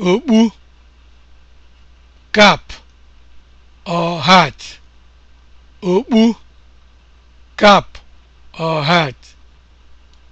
okpu kap or